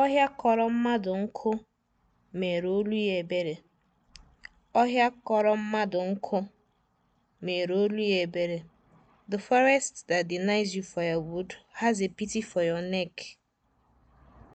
Ọhịa kọrọ mmadụ nkụ mere olu ya ebere. Ọhịa kọrọ mmadụ nkụ mere olu ya ebere. The forest that denies you firewood has a pity for your neck.